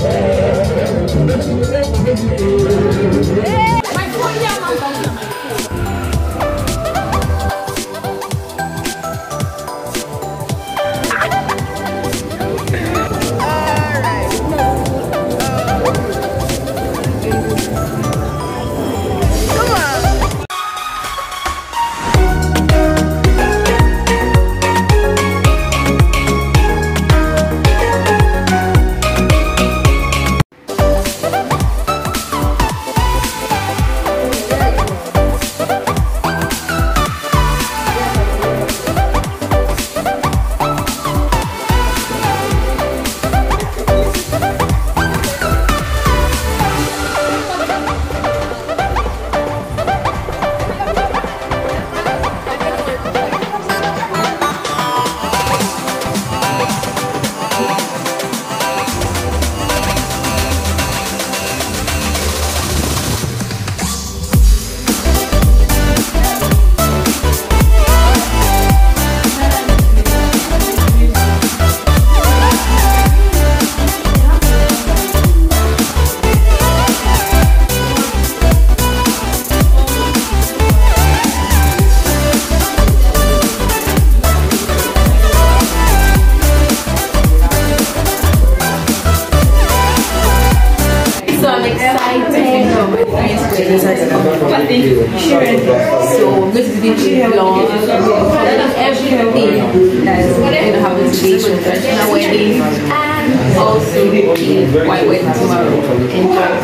네.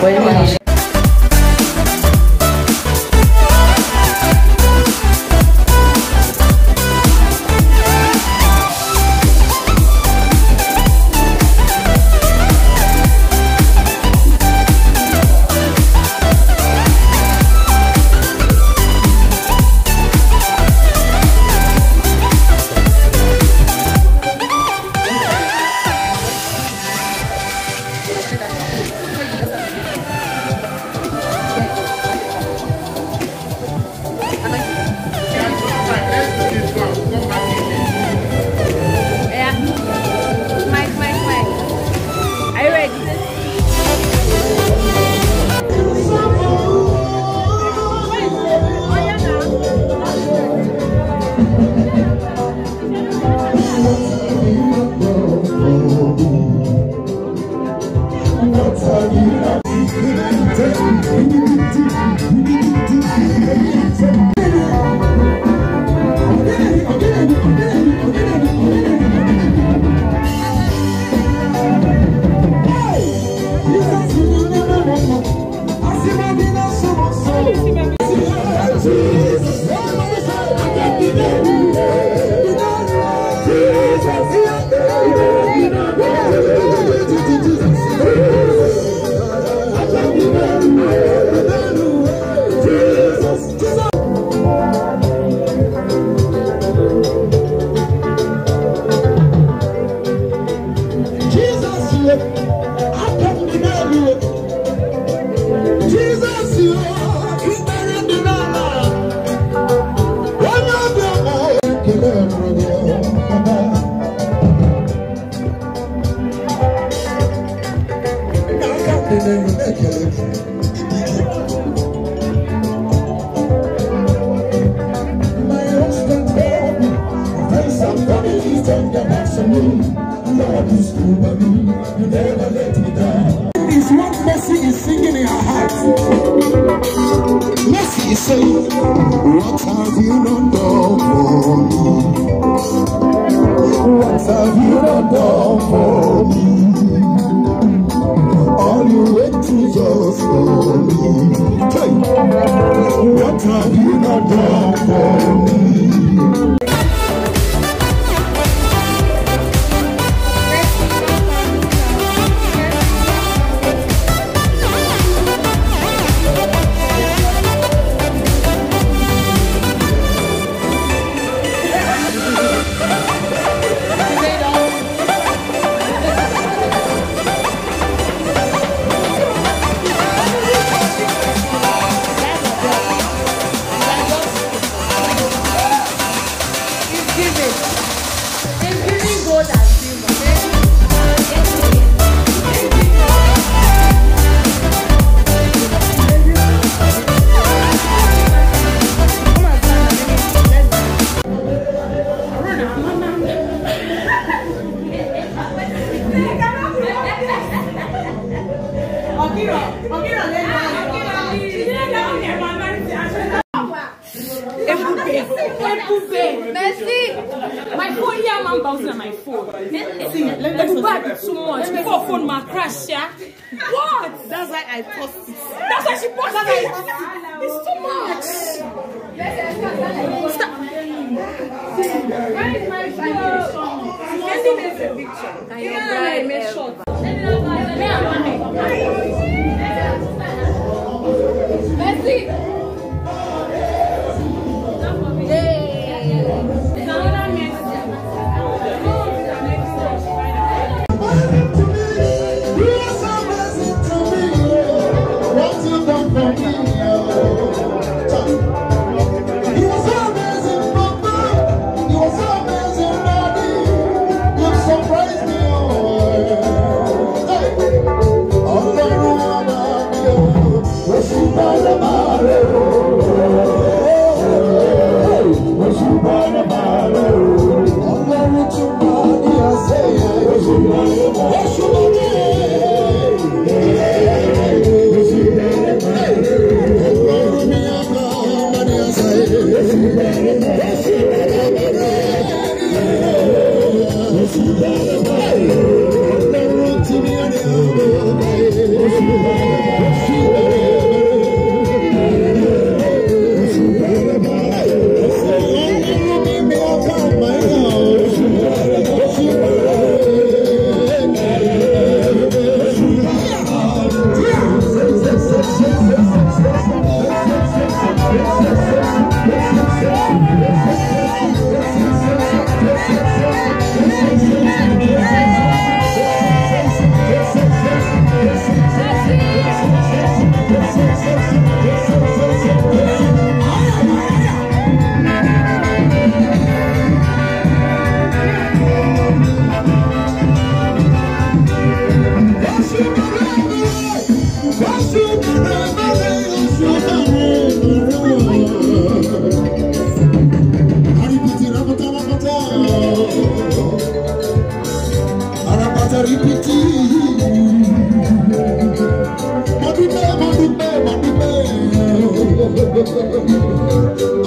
喂。have done for me. All you went to just for me. Hey, what have you not done for me? My phone here, man, bouncing on my phone. Let me is too much. Before phone, my crash, yeah. What? That's why I post it. That's why she posted it. It's too much. Stop. Where is my phone? Sending me a picture. I am right. Short. Let's see. Thank you.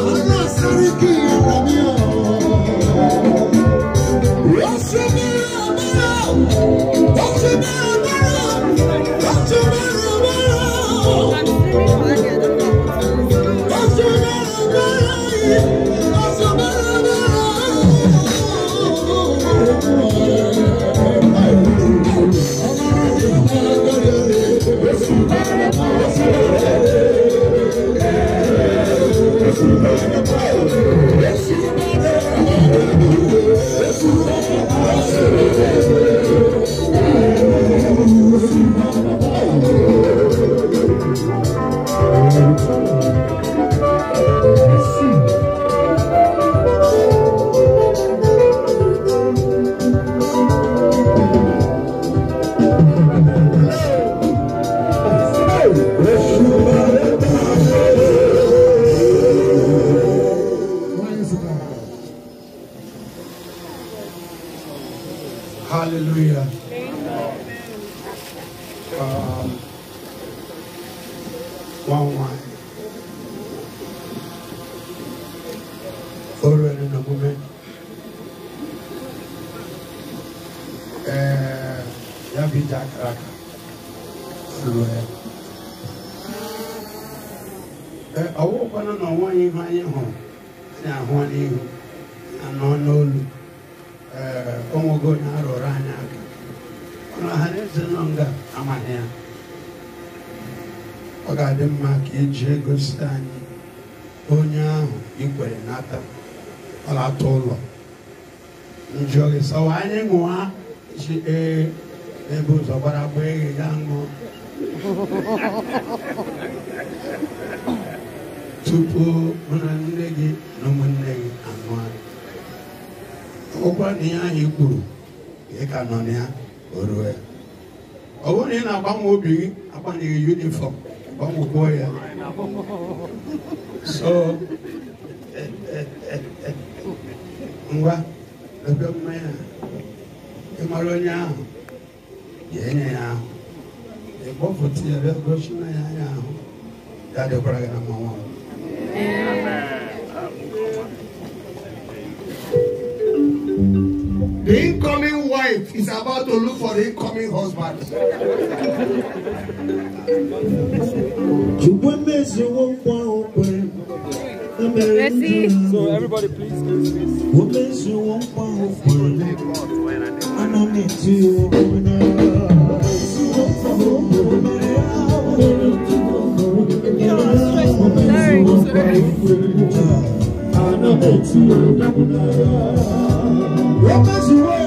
Àlá Sàríkí ọ̀rọ̀ mi wanwan. Following in a moment, uh, Yabi Jack Raka. Somewhere. Awo kwana na wọn yi ha yi hàn, ẹna ahọ́n one hàn. ga-adị mma ka iji e ego anyị onye ahụ ikwere nata ọlata ụlọ gị sọwa anyị ṅụa ji ee ebe ụzọ gbara gba eghe ya ṅụọ tupu mụ gị na ụmụnne gị anụ anyị ọgwụkwa na ihe anyị kwuru ị ka nọ na ya o ruo ya ọ bụrụ na ị na-agbanwe obi gị agbanyeghị yunifọm có mồ côi à so ngwa ebe mmanya ịmara onye ahụ jee nye ya ahụ ịkpọpụta ya bịa gosi na ya anya ahụ ya dịkwara gị na amen, Big incoming wife is about to look for the incoming husband. Messi. So everybody please please please. Sorry, sorry.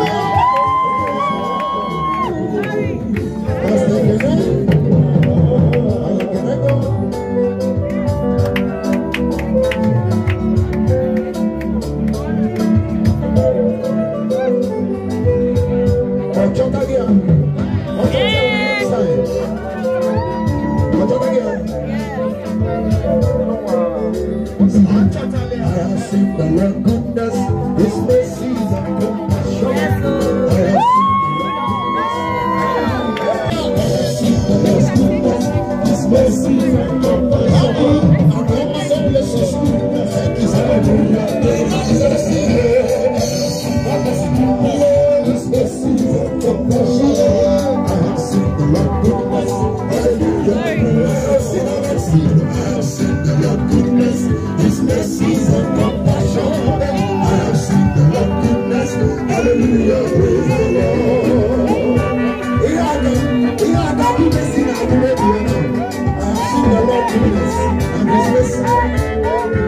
our Lord Jesus and His mercy.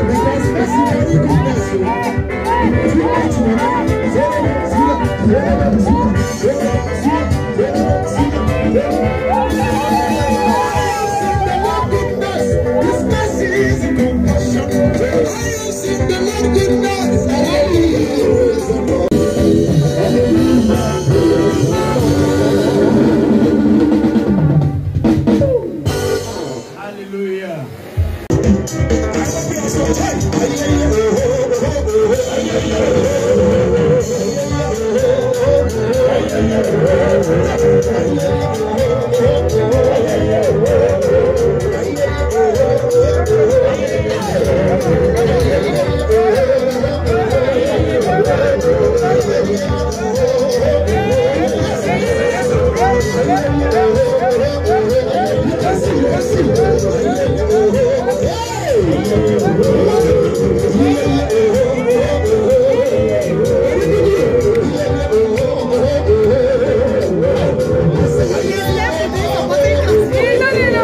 Because mercy you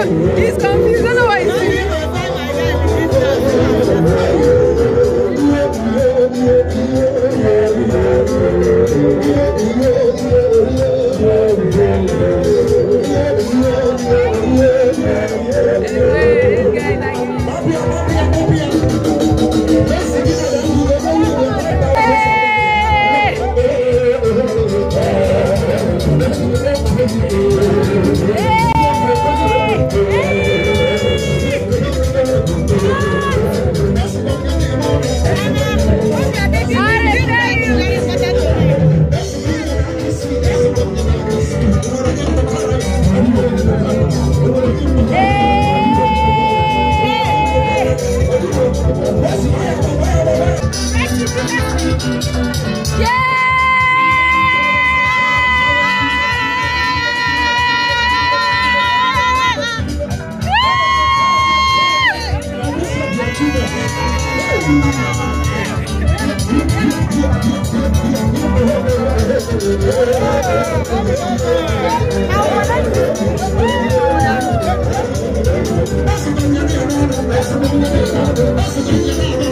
He's confused.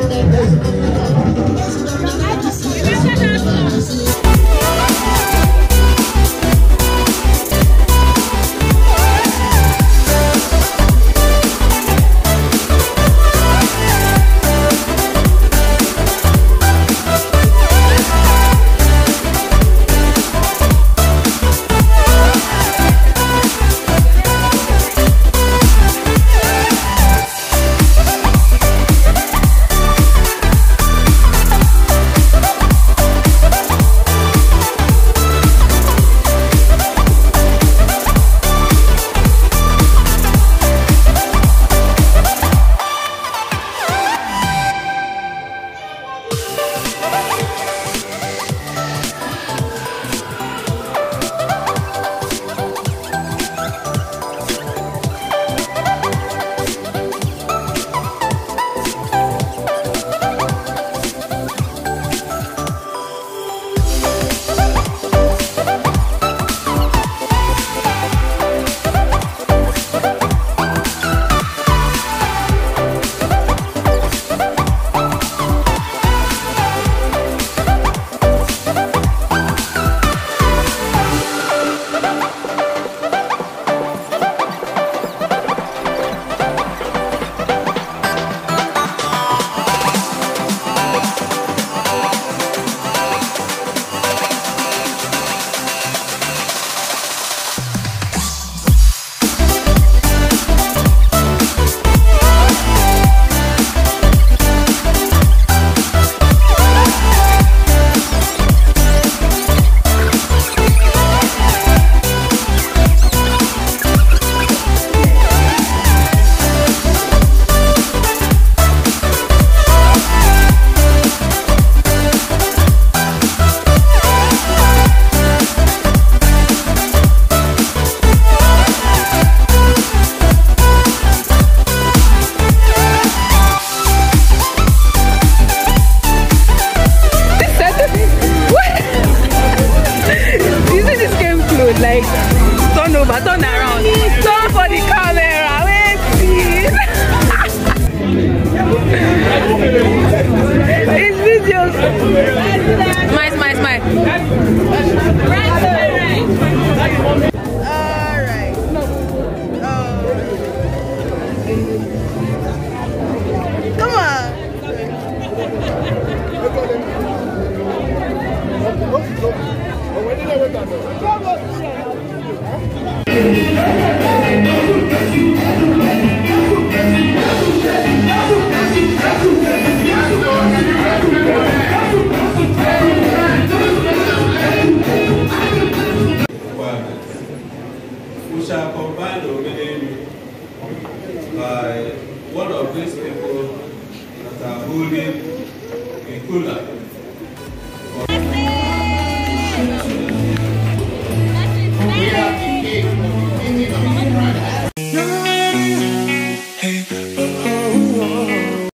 Thank you.